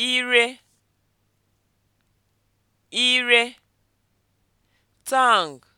ire ire tang